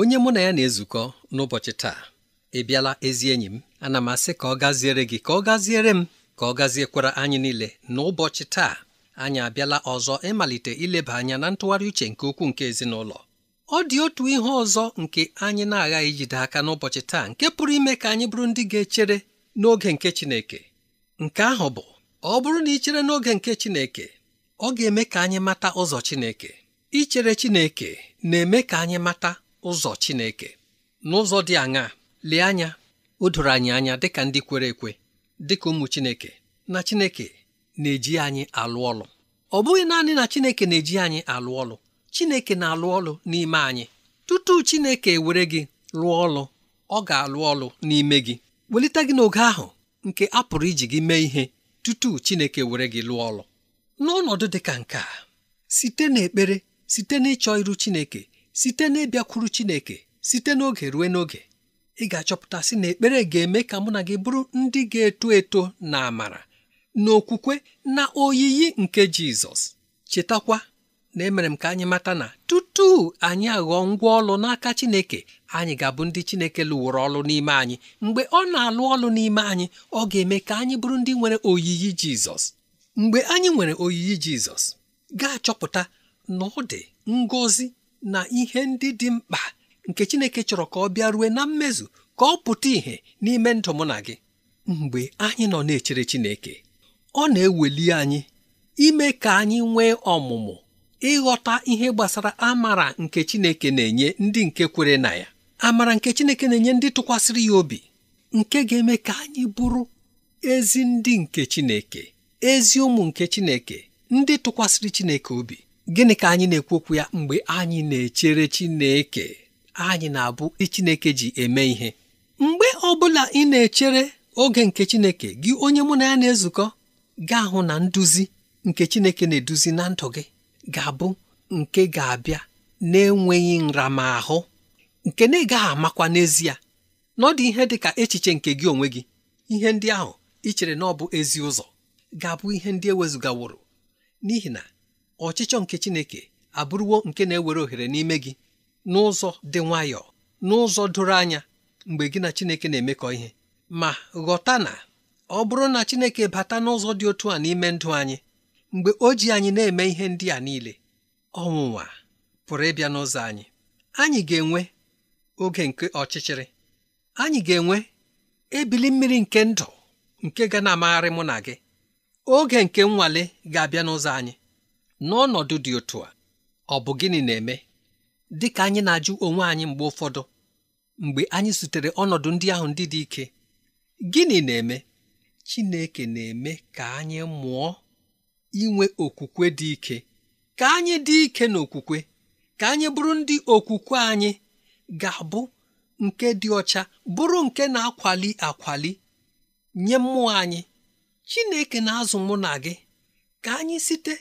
onye mụ na ya na-ezukọ n'ụbọchị taa ị bịala ezi enyi m ana m asị ka ọ gaziere gị ka ọ gaziere m ka ọ gaziekwara anyị niile n'ụbọchị taa anyị abịala ọzọ ịmalite ileba anya na ntụgharị uche nke ukwuu nke ezinụlọ ọ dị otu ihe ọzọ nke anyị na-aghaghị ijide aka n'ụbọchị taa nke pụrụ ime ka anyị bụrụ ndị ga-echere n'oge nke Chineke nke ahụ bụ ọ bụrụ na ị chere n'oge nke Chineke ọ ga-eme ka anyị mata ụzọ Chineke ichere Chineke na-eme ka anyị mata ụzọ Chineke n'ụzọ dị aṅaa lee anya o doro anyị anya dịka ndị kwere ekwe dịka ụmụ Chineke na Chineke na-eji anyị alụ ọlụ ọ bụghị naanị na Chineke na-eji anyị alụ ọlụ Chineke na-alụ ọlụ n'ime anyị tutu Chineke were gị lụọ ọlụ ọ ga-alụ ọlụ n'ime gị welite gị n'oge ahụ nke a pụrụ iji gị mee ihe tutu Chineke were gị lụọ ọlụ n'ọnọdụ dị ka nke a site n'ekpere site n'ịchọ iru Chineke site na Chineke site n'oge ruo n'oge ị ga-achọpụta sị na ekpere ga-eme ka mụ na gị bụrụ ndị ga-eto eto na amara na okwukwe na oyiyi nke Jizọs chetakwa na emere m ka anyị mata na tutu anyị aghọọ ngwa ọlụ n'aka Chineke anyị ga-abụ ndị Chineke lụworo ọlụ n'ime anyị mgbe ọ na-alụ ọlụ n'ime anyị ọ ga-eme ka anyị bụrụ ndị nwere oyiyi Jizọs mgbe anyị nwere oyiyi Jizọs ga-achọpụta na ọ dị ngọzi na ihe ndị dị mkpa nke Chineke chọrọ ka ọ bịa rue na mmezu ka ọ pụta ìhè n'ime ndụ mụ na gị mgbe anyị nọ na-echere Chineke ọ na-eweli anyị ime ka anyị nwee ọmụmụ ịghọta ihe gbasara amara nke Chineke na-enye ndị nke kwere na ya amara nke Chineke na-enye ndị tụkwasịrị ya obi nke ga-eme ka anyị bụrụ ezi ndị nke Chineke ezi ụmụ nke Chineke ndị tụkwasịrị Chineke obi gịnị ka anyị na-ekwu okwu ya mgbe anyị na-echere Chineke anyị na-abụ Chineke ji eme ihe mgbe ọ bụla ị na-echere oge nke Chineke gị onye mụ na ya na-ezukọ gaa hụ na nduzi nke Chineke na-eduzi na ndụ gị ga-abụ nke ga-abịa na-enweghị nramahụ nke na ị gaghị amakwa n'ezie na ọ dị ihe dị ka echiche nke gị onwe gị ihe ndị ahụ ị chere na ọ bụ ezi ụzọ ga-abụ ihe ndị ewezụgaworo n'ihi na ọchịchọ nke Chineke abụrụwo nke na-ewere ohere n'ime gị n'ụzọ dị nwayọọ n'ụzọ doro anya mgbe gị na Chineke na-emekọ ihe ma ghọta na ọ bụrụ na Chineke bata n'ụzọ dị otu a n'ime ndụ anyị mgbe o ji anyị na-eme ihe ndị a niile ọnwụnwa pụrụ ịbịa n'ụzọ anyị anyị ga-enwe oge nke ọchịchịrị anyị ga-enwe ebili mmiri nke ndụ nke ga na-amagharị mụ na gị oge nke nnwale ga-abịa n'ụzọ anyị n'ọnọdụ dị otu a ọ bụ gịnị na-eme dị ka anyị na-ajụ onwe anyị mgbe ụfọdụ mgbe anyị zutere ọnọdụ ndị ahụ ndị dị ike gịnị na-eme Chineke na-eme ka anyị mụọ inwe okwukwe dị ike ka anyị dị ike n'okwukwe ka anyị bụrụ ndị okwukwe anyị ga-abụ nke dị ọcha bụrụ nke na-akwali akwali nye mmụọ anyị Chineke na-azụ mụ na gị ka anyị site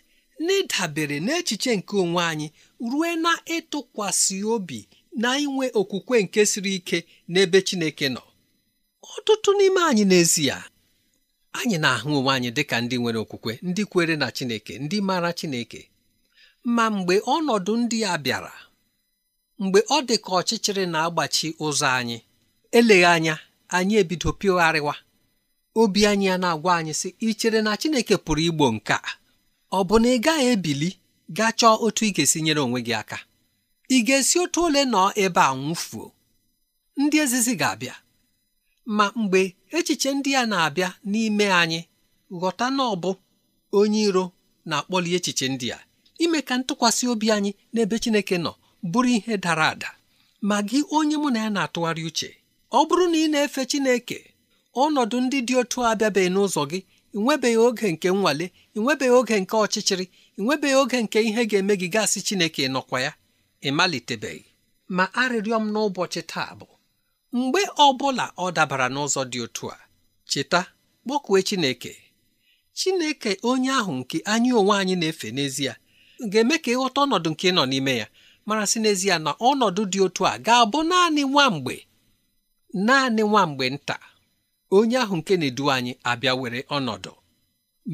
n'ịdabere n'echiche nke onwe anyị rue na ịtụkwasị obi na inwe okwukwe nke siri ike n'ebe Chineke nọ ọtụtụ n'ime anyị n'ezie anyị na-ahụ onwe anyị dị ka ndị nwere okwukwe ndị kwere na Chineke ndị maara Chineke ma mgbe ọnọdụ ndị a bịara mgbe ọ dị ka ọchịchịrị na-agbachi ụzọ anyị eleghị anya anyị ebido pịgharịwa obi anyị ya na-agwa anyị sị ichere na Chineke pụrụ igbo nke a ọ bụ na ị gaghị ebili gaa chọọ otu ị ga-esi nyere onwe gị aka ị ga-esi otu ole nọ ebe a nwụfuo ndị ezizi ga-abịa ma mgbe echiche ndị a na-abịa n'ime anyị ghọta na onye iro na-akpọli echiche ndị a ime ka ntụkwasị obi anyị n'ebe Chineke nọ bụrụ ihe dara ada ma gị onye mụ na ya na-atụgharị uche ọ bụrụ na ị na-efe Chineke ọnọdụ ndị dị otu abịabeghị n'ụzọ gị ị nwebeghị oge nke nnwale ị nwebeghị oge nke ọchịchịrị ị nwebeghị oge nke ihe ga-eme gị gasị Chineke nọkwa ya ịmalitebeghị. ma arịrịọ m n'ụbọchị taa bụ mgbe ọ bụla ọ dabara n'ụzọ dị otu a cheta kpọkue Chineke Chineke onye ahụ nke anyị onwe anyị na-efe n'ezie ga-eme ka ịghọta ọnọdụ nke ị nọ n'ime ya mara sị n'ezie na ọnọdụ dị otu a ga-abụ naanị nwa mgbe naanị nwa mgbe nta onye ahụ nke na-edu anyị abịa were ọnọdụ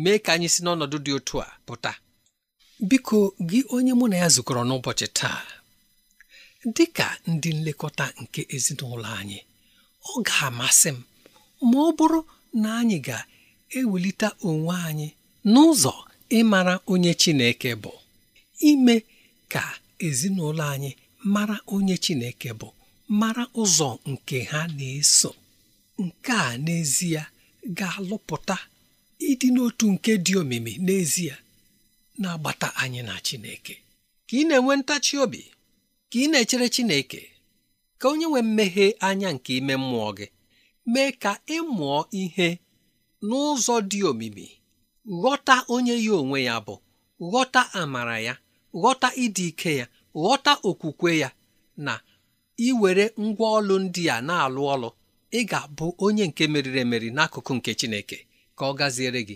mee ka anyị si n'ọnọdụ dị otu a pụta biko gị onye mụ na ya zukọrọ n'ụbọchị taa dị ka ndị nlekọta nke ezinụlọ anyị ọ ga-amasị m ma ọ bụrụ na anyị ga-ewelite onwe anyị n'ụzọ ịmara onye Chineke bụ ime ka ezinụlọ anyị mara onye Chineke bụ mara ụzọ nke ha na-eso nke a n'ezie ga-alụpụta ịdị n'otu nke dị omimi n'ezie na-agbata anyị na Chineke ka ị na-enwe ntachi obi ka ị na-echere Chineke ka onye nwe mmeghe anya nke ime mmụọ gị mee ka ịmụọ ihe n'ụzọ dị omimi ghọta onye ya onwe ya bụ ghọta amara ya ghọta ịdị ike ya ghọta okwukwe ya na iwere ngwa ọlụ ndị a na-alụ ọlụ ị ga-abụ onye nke meriri emeri n'akụkụ nke Chineke ka ọ gaziere gị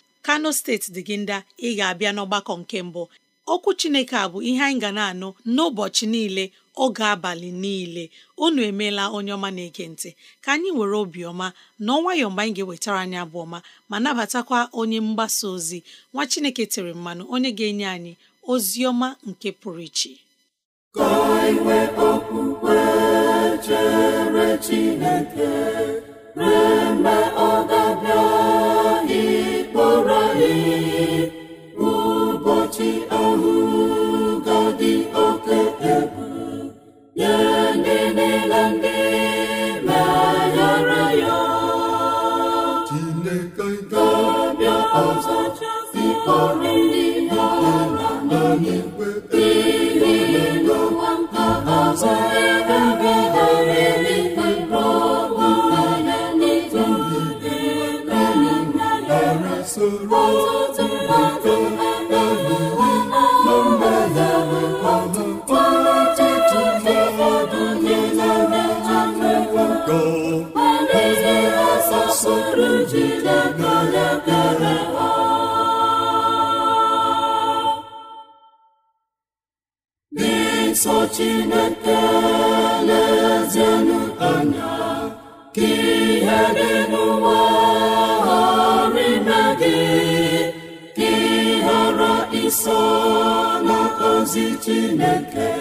kano steeti dị gị ndị ị ga-abịa n'ọgbakọ nke mbụ okwu chineke a bụ ihe anyị ga na-anụ n'ụbọchị niile oge abalị niile unu emeela onye ọma na-ege ntị ka anyị were obiọma na ọnwayọ mgbe anyị ga-ewetara anyị abụ ọma ma nabatakwa onye mgbasa ozi nwa chineke tere mmanụ onye ga-enye anyị ozi ọma nke pụrụ iche ka iwe okwukwe chere Chineke mgbe ọ ga-abịa Amen. ozi chineke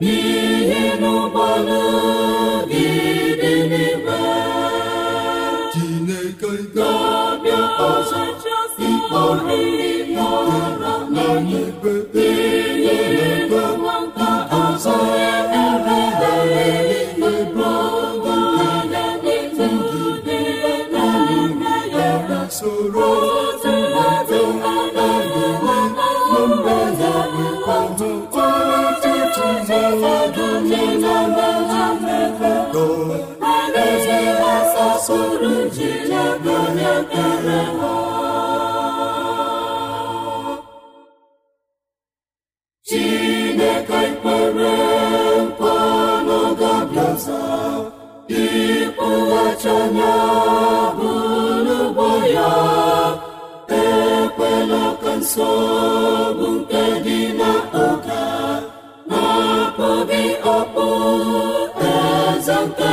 n'ihe n'ụgbọnagị dị n'ime chineke ga-abịa ọzọ ikpọrọ mmụọ na e n'igwe soro sụrụ jilebe ekpere ha chineke ikpere mkpọnọgabiaza ịkpụghachanya bụrụgbo ya ekwela ka nsogbu nke dị n'oge na-akpụ gị ọkpụ eze nke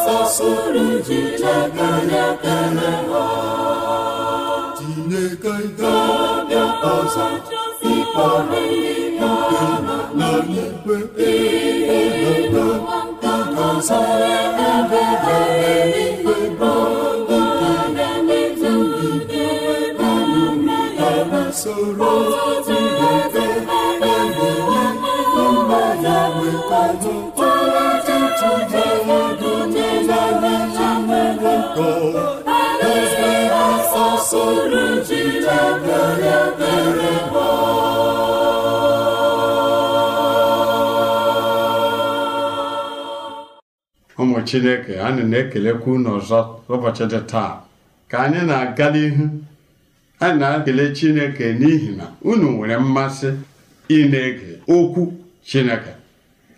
ji sasụrụ jijekanakeneha tineke ga-abịa ọzọ ikpe ọrụ na n'ikpe chineke anyị na-ekelekwa unu ọzọ ụbọchị dị taa ka anyị na-aga n'ihu anyị na-ekele chineke n'ihi na unu nwere mmasị ị na-ege okwu chineke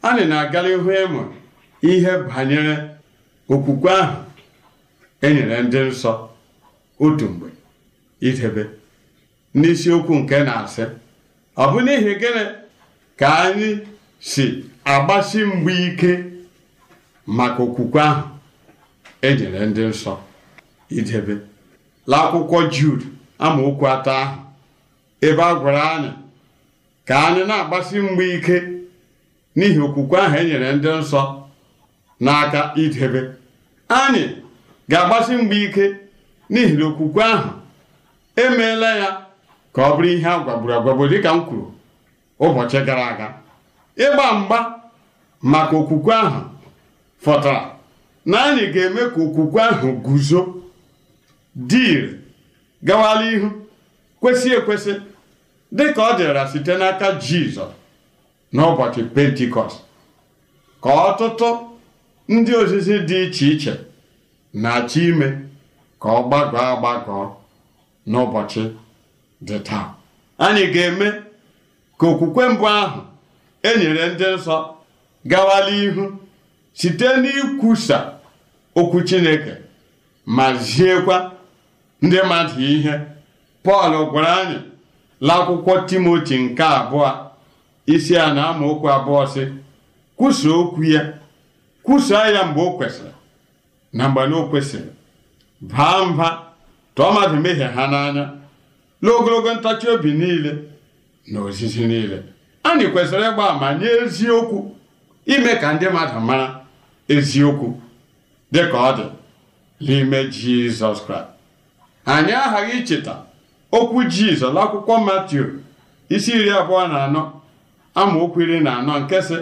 anyị na-aga n'ihu ịmụ e ihe banyere okwukwe ahụ e nyere ndị nsọ otu mgbe idebe n'isiokwu nke na-asị ọ bụ n'ihi gịnị ka anyị si agbasi mgba ike maka okwukwe ahụ enyere ndị nsọ idebe l'akwụkwọ Jude amaokwu atọ ahụ ebe a gwara anyị ka anyị na-agbasi mgba ike n'ihi okwukwe ahụ enyere ndị nsọ n'aka idebe anyị ga-agbasi mgba ike n'ihi na okwukwe ahụ emeela ya ka ọ bụrụ ihe a gwagburu dịka m kwuru ụbọchị gara aga ịgba mgba maka okwukwe ahụ fọtara na anyị ga-eme ka okwukwe ahụ guzo dịịrị ire gawala ihu kwesị ekwesị ka ọ dịra site n'aka jizọs n'ụbọchị pentikọst ka ọtụtụ ndị ozizi dị iche iche na-achọ ime ka ọ gbagọọ agbagọọ n'ụbọchị dị taa anyị ga-eme ka okwukwe mbụ ahụ e nyere ndị nsọ gawala ihu site n'ikwusa okwu chineke ma ziekwa ndị mmadụ ihe pọl gwara anyị n'akwụkwọ timoti nke abụọ isi a na amaokwu abụọ si kwusa okwu ya kwusaa ya mgbe o kwesịrị na mgbe na o kwesịrị baa mba tụọ mmadụ mehie ha n'anya n'ogologo ntachi obi niile na ozizi niile anyị kwesịrị ịgba ma nye eziokwu ime ka ndị mmadụ mara eziokwu dị ka ọ dị n'ime jizọs kraịst anyị aghaghị icheta okwu jizọs n'akwụkwọ matiu isi iri abụọ na anọ amaokwu iri na anọ nke sị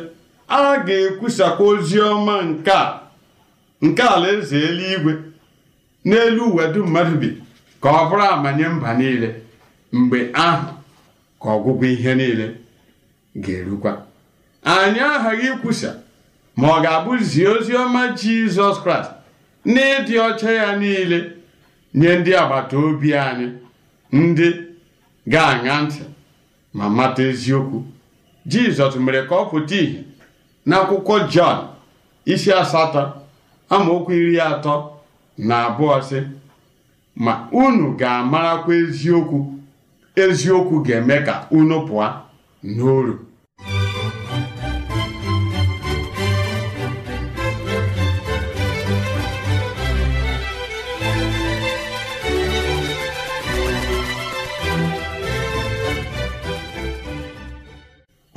a ga-ekwusakwa ozi ọma nke a nke alaeze eluigwe n'elu uwe dum mmadụ bi ka ọ bụrụ amanye mba niile mgbe ahụ ka ọgwụgwọ ihe niile ga-erukwa anyị aghaghị ikwusa ma ọ ga-abụzi ozi ọma Jizọs Kraịst na ọcha ya niile nye ndị agbata obi anyị ndị ga-aṅa ntị ma mata eziokwu Jizọs mere ka ọ pụta ìhè n'akwụkwọ Jọn isi asatọ amaokwu iri atọ na abụọ sị ma unu ga-amarakwa eziokwu eziokwu ga-eme ka unu pụọ n'oru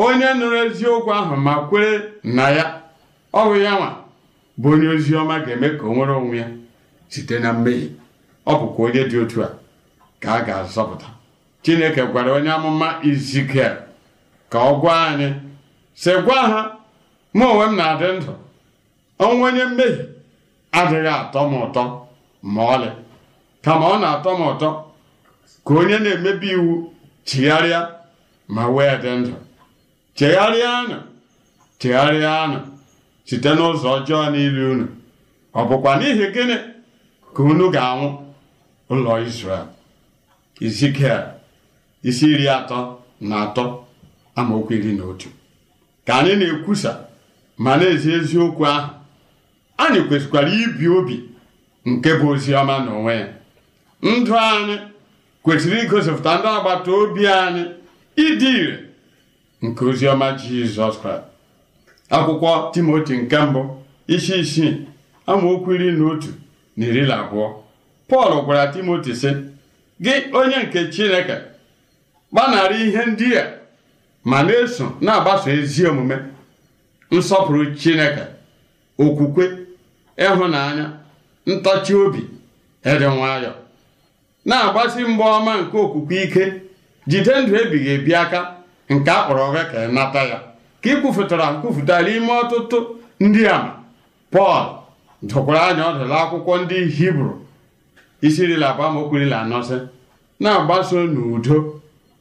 onye nụrụ eziokwu ahụ ma kwere na ya ọhụ ya nwa bụ onye ozi ọma ga-eme ka o nwere onwe ya site na mmehie ọ bụkwa onye dị otu a ka a ga-azọpụta chineke gwara onye amụma izikiel ka ọ gwa anyị sị gwa ha mụ onwe m na-adị ndụ ọnwụ onye mmehie adịghị atọ m ụtọ ma ọlị kama ọ na-atọ m ụtọ ka onye na-emebi iwu chigharịa ma wee dị ndụ chegharịanụ chegharịanụ site n'ụzọ ọjọọ niile unu ọ bụkwa n'ihi gịnị ka unu ga-anwụ ụlọ Izrel Izikiel isi iri atọ na atọ amaokwu iri na otu ka anyị na-ekwusa ma na-ezi eziokwu ahụ anyị kwesịkwara ibi obi nke bụ ozi ọma onwe ya ndụ anyị kwesịrị igosipụta ndị agbata obi anyị ịdị ire nke oziọma jizọs kraịst akwụkwọ timoti nke mbụ isi isii amaokwu iri na otu na iri na abụọ pọl gwara timoti sị gị onye nke chineke gbanarị ihe ndị a ma na-eso na-agbaso ezi omume nsọpụrụ chineke okwukwe ịhụnanya ntachi obi ịdị nwayọọ na-agbasi mgba ọma nke okwukwe ike jide ndụ ebighị ebi aka nke a kpọrọ ọgha ka ị e nata ya ka ị kwufụtara nkwufụtara ime ọtụtụ ndị ama pọl dụkwara anya ọdụla akwụkwọ ndị hibru isi rila abụọ amaokwu rila anọ na-agbaso n'udo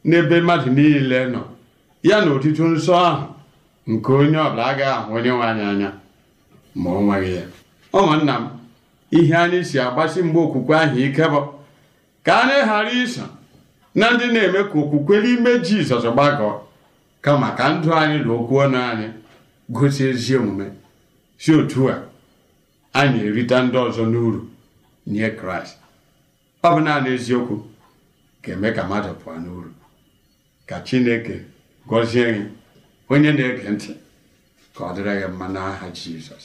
n'ebe mmadụ niile nọ ya na otutu nsọ ahụ nke onye ọbụla agaghị ahụ onye nwe anyị anya ma ọ nweghị ya ụmụnna m ihe anyị si agbasi mgbe okwukwe ahụ ike bụ ka anyị ghara iso na ndị na-eme ka okwukwe n'ime jizọs gbagọọ kama ka ndụ anyị na okwu ọnụ anyị gosi ezi omume si otu a anyị erite ndị ọzọ n'uru nye kraịst ọ bụ naanị eziokwu ga-eme ka mmadụ pụọ n'uru ka chineke gọzie gị onye na-ege ntị ka ọ dịrị gị mma n'aha jizọs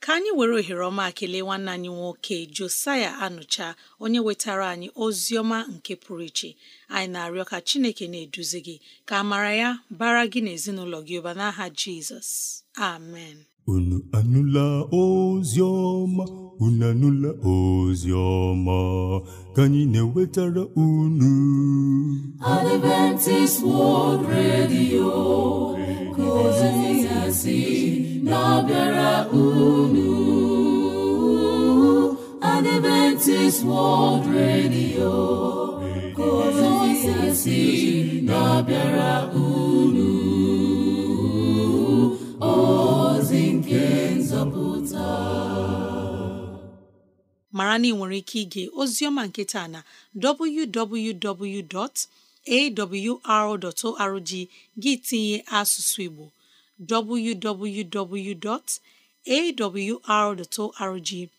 ka anyị were ohere ọma kelee nwanne anyị nwoke Josaya Anụcha onye wetara anyị ozi ọma nke pụrụ iche anyị na-arịọ ka Chineke na-eduzi gị ka amara ya bara gị na ezinụlọ gị ụba n'aha Jizọs amen unu anụla ozi ọma unu anụla ozi ka anyị na-ewetara unu Adventist World Radio ka ozi na-abịara unu Adventist World Radio kozisi na-abịara unu ozi nke nzọpụta mara na ị nwere ike ige oziọma nke taa na www.awr.org gị tinye asụsụ Igbo www.awr.org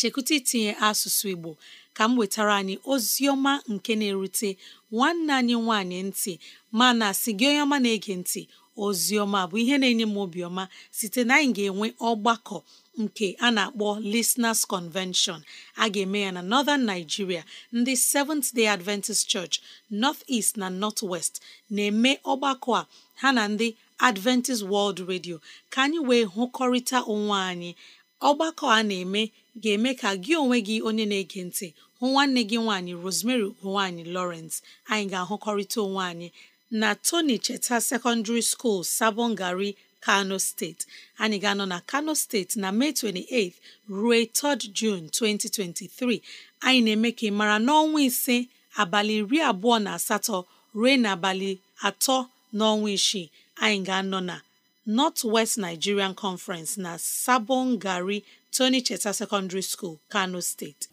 chekwụta itinye asụsụ Igbo ka m wetara anyị ozi ọma nke na-erute nwanne anyị nwanyị ntị mana sị gị onye ọma na-ege ntị ozi ọma bụ ihe na-enye m obiọma site na anyị ga-enwe ọgbakọ nke a na-akpọ Listeners Convention a ga-eme ya na Northern Nigeria ndị Seventh Day Adventist Church North East na North West na-eme ọgbakọ a ha na ndị adventist world radio ka anyị wee hụkọrịta onwe anyị ọgbakọ a na-eme ga-eme ka gị onwe gị onye na-ege ntị hụ nwanne gị nwaanyị rosemary ugonwaanyị lawrence anyị ga-ahụkọrịta onwe anyị na tony cheta secondary school sabongari kano steeti anyị ga-anọ na kano steeti na mee 28 ruo 3 jun 2023 anyị na-eme ka ị mara n'ọnwa ise abalị iri abụọ na asatọ ruo n'abalị atọ n'ọnwa isii anyị ga-anọ na North West Nigerian Conference na Sabon Gari Tony Cheta Secondary School, Kano State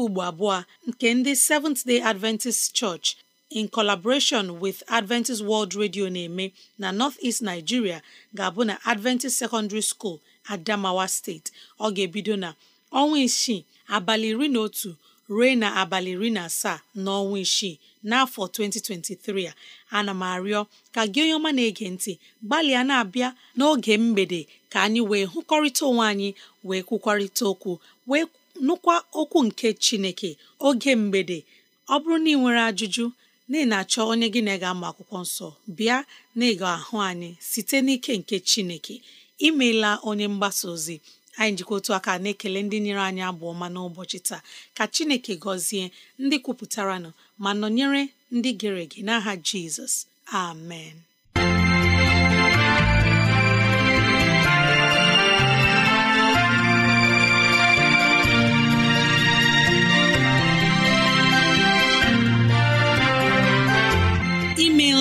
nke ugbo abụọ nke ndị Seventh Day Adventist Church in collaboration with Adventist World Radio na-eme na North-East Nigeria ga-abụ na Adventist Secondary School Adamawa State ọ ga-ebido na ọnwa isii abalị iri na otu ruo na abalị iri na asaa n'ọnwa isii n'afọ 2023 a ana m arịọ ka gị onye ọma na-ege ntị gbalịa na-abịa n'oge mgbede ka anyị wee hụkọrịta onwe anyị wee kwukwarịta okwu wee nụkwa okwu nke chineke oge mgbede ọ bụrụ na ị nwere ajụjụ na ị na-achọ onye gị na ga-ama akwụkwọ nsọ bịa na ịga ahụ anyị site n'ike nke chineke imeela onye mgbasa ozi anyị njikọ otu aka na-ekele ndị nyere anyị abụ ọma n'ụbọchị taa ka chineke gọzie ndị kwupụtaranụ ma nọnyere ndị gere ege n'aha jizọs amen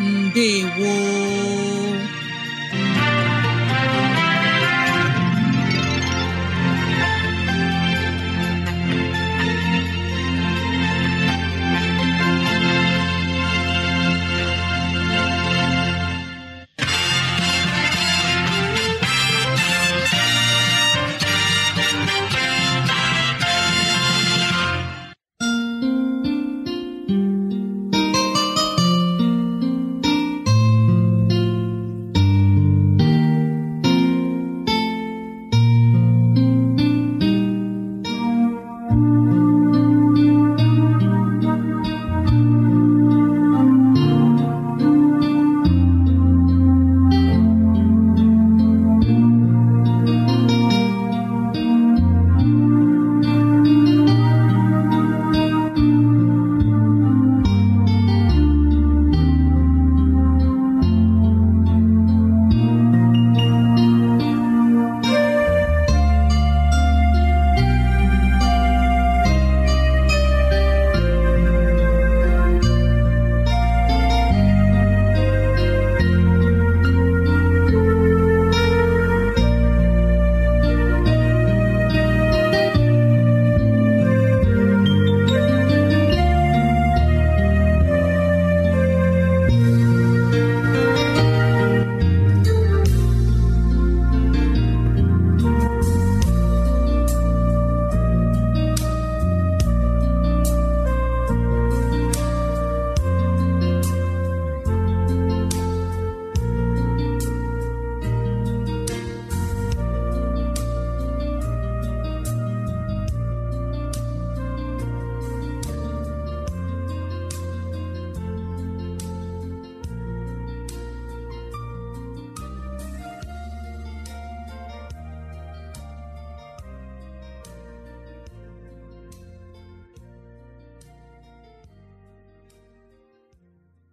ndewo